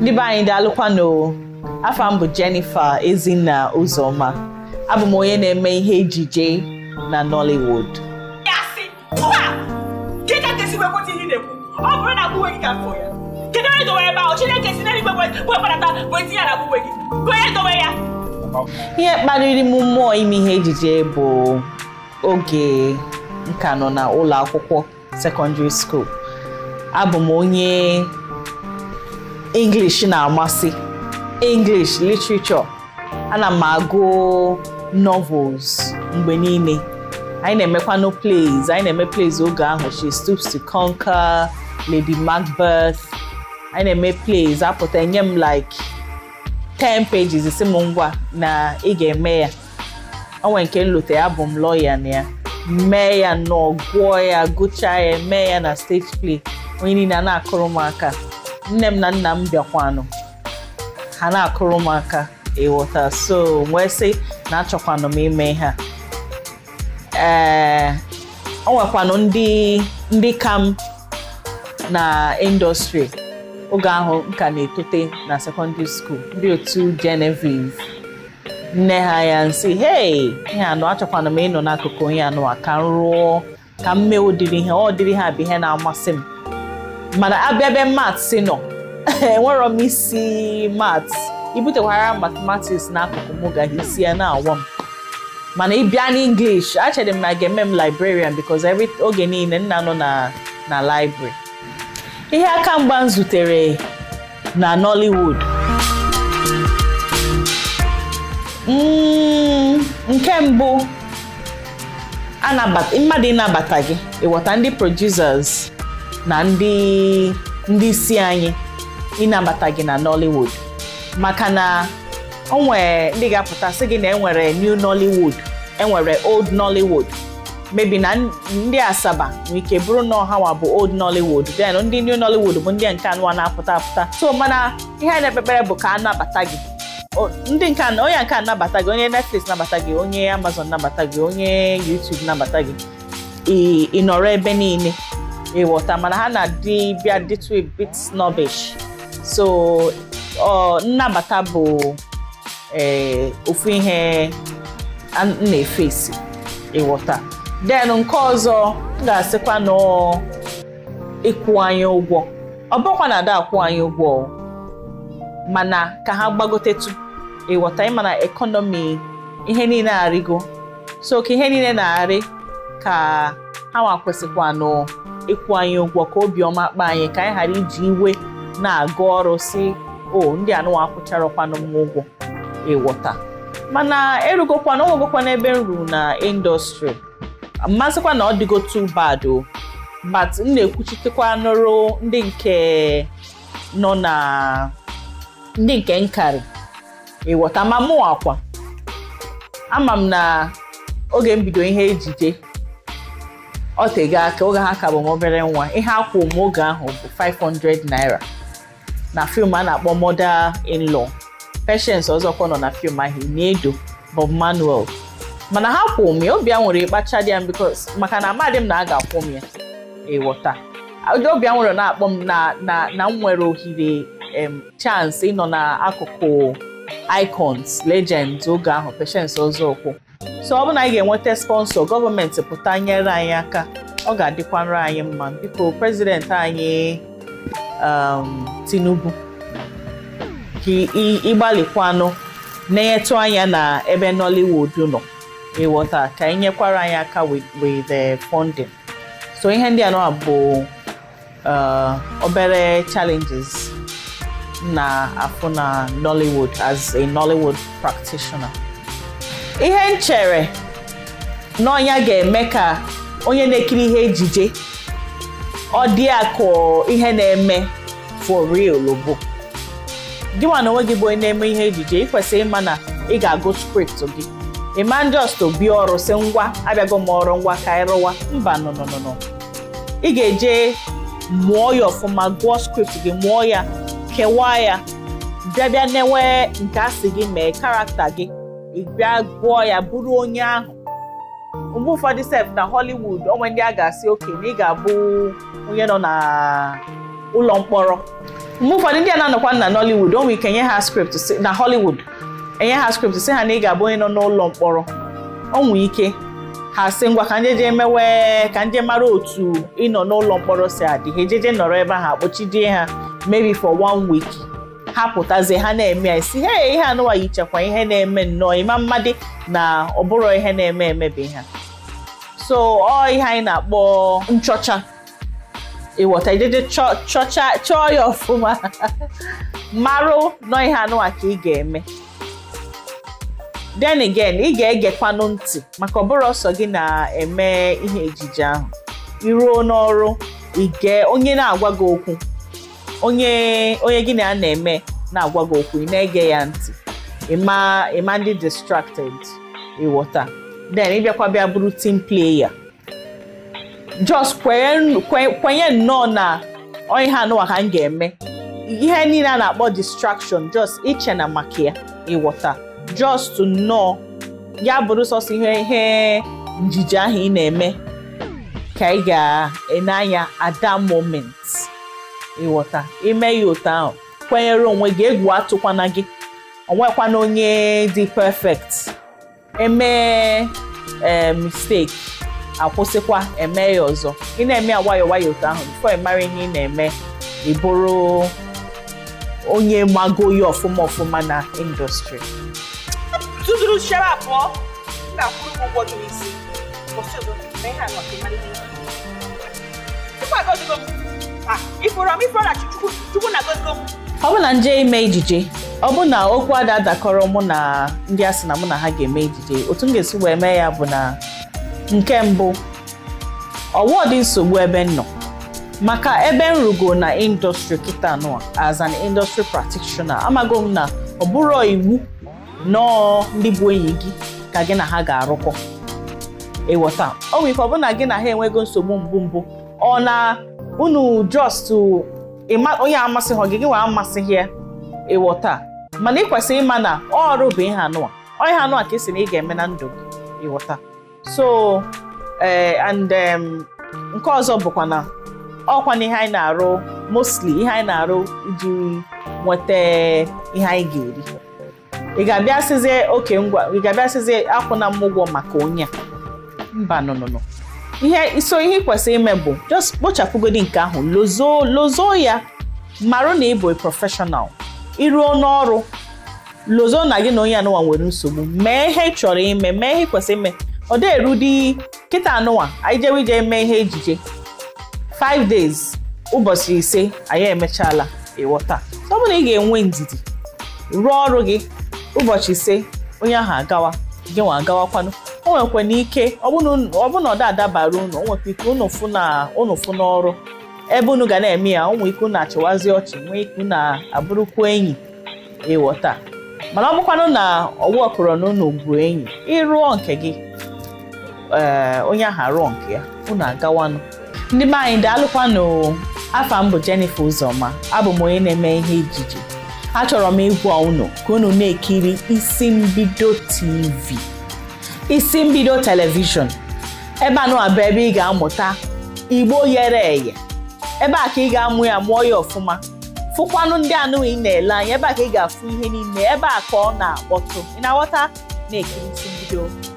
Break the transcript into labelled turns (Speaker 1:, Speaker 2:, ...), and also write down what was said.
Speaker 1: Ndị anyị daalụkwanụ afọ m bụ Jennifer Ezinna Ụzọma abụ m onye na-eme ihe ejije na Nollywood ọ bụrụ na agbụwe gị ka fụ ya kedu onye dowe ebe ahụ chineke e si n'eluigwe webata na agbụwe gị onye dowe ya ihe kpaliri m mmụọ ime ihe ejije bụ oge nka nọ na ụlọ akwụkwọ sekọndịrị skuul abụ m onye English na-amasị English literature ana m agụ novels mgbe niile anyị na-emekwanụ plays anyị na-eme plays oge ahụ She Stoops to Conquer Lady Macbeth anyị na-eme plays apụta enye m like 10 pages si m ngwa na ị ga-eme ya onwe nke nlote ya bụ m lọya na ya mee ya nọọ gwụọ ya gụchaa ya mee ya na stage play onye niile a na-akụrụ m aka nne m na nna m bịakwanụ ha na-akụrụ m aka ịghọta so wee sị na achọkwanụ m ime ha ee o nwekwanụ ndị ndị ka na indọstrị oge ahụ ka na-etote na sekọndịrị skuul ndị otu Genevieve nne ha ya nsị hei ihe anụ achọkwanụ m ịnọ n'akụkụ ihe anụ a ka m ka m mee ụdịrị ihe ọ dịrị ha bụ ihe na-amasị m mana abịa ebe maths nọ enwerọ m isi maths ibutekwara mathematics n'akụkụ m gaghị isi ya na-awọ m mana ịbịa n'english achere m na ga-eme m librarian because oge niile nna nọ na na library ihe aka mgba m zutere na nollywood mm, nke mbụ mmadụ ịnabata gị ịghọta ndị producers na ndị ndị isi anyị ịnabata gị na Nollywood maka na o ndị ga-apụta sị gị na enwere new Nollywood enwere old Nollywood mebi na ndị Asaba nwere ike bụrụ na ọhawa bụ old Nollywood then ndị new Nollywood bụ ndị nke anụwa na-apụta apụta so mana ihe na-ekpekpere bụ ka a nabata gị ndị nke onye nke anabata nabata gị onye Netflix nabata gị onye Amazon nabata gị onye YouTube nabata gị ị nọrọ ebe niile ịghọta mana ha na bịa dịtụ a bit snobbish so uh, nnabata bụ eh, ofu ihe a na-efesi ịwọta then nke ọzọ ga-asịkwa na ịkwụ anyị ụgwọ ọ bụkwa na ada akwụ anyị ụgwọ mana ka ha gbagotetu ịwọta mana ekọnọmi ihe niile arịgo so ka ihe niile na-arị ka ha nwa kwesịkwa ịkwụ anyị ụgwọ ka obiọma kpa anyị ka anyị ghara iji iwe na agụ ọrụ si o ndị anụwa akwụcharọkwanụ m ụgwọ ịwọta e mana erugokwana ọgwụgokwana ebe m ruru na indọstrị mmasịkwa na ọ dịgo too bad o but m na-ekwuchitekwa nụrụ ndị nke nọ na ndị nke nkari. ịwọta e ma mụ akwa ama m na oge m ihe ejije ọ tego aka oge ha ka bụ m obere nwa ihe akwụ oge ahụ bụ 500 naira na fim a na-akpọ mother in law Patience ọzọkwa nọ na fim ahụ Inedo Bob Manuel mana ha kwụ m ya obi a nwere ịkpacha dị ya because maka na amadị m na a ga-akwụ m ya ịghọta nwere na-akpọ m na m nwere ohere chance ịnọ n'akụkụ icons legends oge ahụ ọzọ ọzọkwa so ọ bụ na anyị ga-enweta sponsọ gọọmenti pụta nyere anyị aka ọ ga-adịkwanrụ anyị mma biko prezidenti anyị um, Tinubu ka ịgbalịkwanụ na-enyetụ anya na ebe Nollywood nọ ịghọta ka nyekwara anyị aka with the funding so ihe ndị anọ bụ uh, obere challenges na afụ na Nollywood as a Nollywood practitioner ihe m chere na ọnya ga-eme ka onye na-ekiri ihe ejije ọ dị akụ ihe na-eme for real bụ gịnwa na onwe gị bụ onye na-eme ihe ejije ị kwesịrị ịma na ị ga-agụ script gị ịma ndị ọstọ bịa ọrụ si ngwa abịago m ọrụ ngwa ka ịrụwa mba nọnọnọ ị ga-eje mụọ ya ọfụma gụọ skript gị mụọ ya kewaa ya bịabịa newe nke asị gị mee karakta gị ị bịa gụọ ya bụrụ onye ahụ mgbe ụfọdụ sef na Hollywood onwe ndị a ga-asị oke na ị ga-abụ onye nọ na ụlọ mkpọrọ mgbe ụfọdụ ndị a na-anọkwa na Nollywood onwe ike nye ha script na Hollywood enye ha skript si ha na ị ga-abụ onye nọ n'ụlọ mkpọrọ onwe ike ha si ngwa ka njeje mewe ka nje mara otu ịnọ n'ụlọ mkpọrọ si adị ha ejeje nọrọ ebe ahụ akpọchidie ha maybe for one week ha ha na-eme ya isi he ihe anụwa chekwaa ihe na-eme nnọọ ịma mmadụ na ọ bụrụ ihe na-eme emebi ha so ọ ihe anyị na-akpọ nchọcha ịghọta ideje chọcha chọọ ya ọfụma marụ nọ ihe anụwa ka ị ga-eme Den again ị ga-egekwanụ ntị maka ọ bụrụ ọsọ gị na-eme ihe ejije ahụ iruo n'ọrụ ige onye na-agwa gị okwu onye onye gị na ya na-eme na-agwa gị okwu ị na-ege ya ntị ịma ndị distracted ịghọta then ịbịakwa bịa bụrụ team player just kwenye nnọọ na onye ha anụwa ha m ga-eme ihe niile a na-akpọ distraction jos iche na maka ya ịghọta jos to nnọọ ya bụrụ sọsọ ihe ihe njije ahụ ị na-eme ka ị ga-ene anya at that moment ịghọta ime ya otu ahụ kwenyere onwe gị egwu atụkwana gị onwekwana onye dị perfect emee eh, mistake akwụsịkwa eme ya ọzọ ị na-eme ya nwayọọ nwayọọ otu ahụ bifo mara ihe ị na-eme ị bụrụ onye mago ya ọfụma ọfụma na indọstrị m na chukwu na ọbụna nje ime ejije na okwu ada dakọrọ mụ na ndị a sị na mụ na ha ga-eme ejije otu m ga-esi wee mee ya bụ na nke mbụ ọwụọ dị nsogbu ebe nọ maka ebe nrugo na indọstrị kịta nụa as an industry practitioner amago m na ọ bụrụ iwu nọọ ndị bụ enyi gị ka gị na ha ga-arụkọ ịghọta o nwere ike gị na ha enwego nsogbu mbụ mbụ ọ na unu just onye amasị gị gị nwa amasịghị ya taa mana ị kwesịrị ịma na ọrụ bụ ihe anụwa onye anụwa ka esi na ị ga-eme na ndụ gị ịwọta so eh, nke ọzọ bụkwa na ọkwa na ihe anyị na-arụ mostly ihe anyị na-arụ iji nweta ihe anyị ga-eri ị ga-abịa sizie oke ngwa ị ga-abịa akwụna m ụgwọ maka onye a mba nụnụnụ ihe iso ihe kwesịrị ime bụ just kpochapụgodi nke ahụ lozo lozo ya marụ na ịbụ prọfeshọnal iruo n'ọrụ lozo na gị na onye anụwa nwere nsogbu mee ihe chọrọ ime mee ihe ị kwesịrị ime ọ dị erudi kịta anụwa anyị jewe ije mee ihe ejije 5 days ụbọchị ise anyị emechaala ịghọta ọ bụrụ na ị ga-enwe ndidi rụọ ọrụ gị ụbọchị ise onye ahụ agawa gị nwa agawakwanụ o nwekwana ike ọbụna ọda adabara unu o nwekwa ike unu fụ n'ọrụ ebe unu ga na-eme ya ụmụ nwee ike unu achịwazi ọchị nwee ike na abụrụkwa enyi ịghọta e mana ọ bụkwanụ na ọwụ ọkụrọ na unu bụ enyi ịrụọ nke gị ee eh, onye ahụ arụọ nke ya unu agawanụ ndị be anyị daalụkwanụ afa mbụ bụ Jennifer abụ m onye na-eme ihe ijiji achọrọ m ịgwa unu ka unu na-ekiri isi mbido TV isi mbido telivishọn ebe a bụ ebe ị ga-amụta igbo ghere eghe ebe a ka ị ga-amụ ya mụọ ya ọfụma fụkwanụ ndị anụghị na-ele anya ebe a ka ị ga-afụ ihe niile ebe a ka ọ na-akpọtụ ị na-aghọta na ekirisi mbido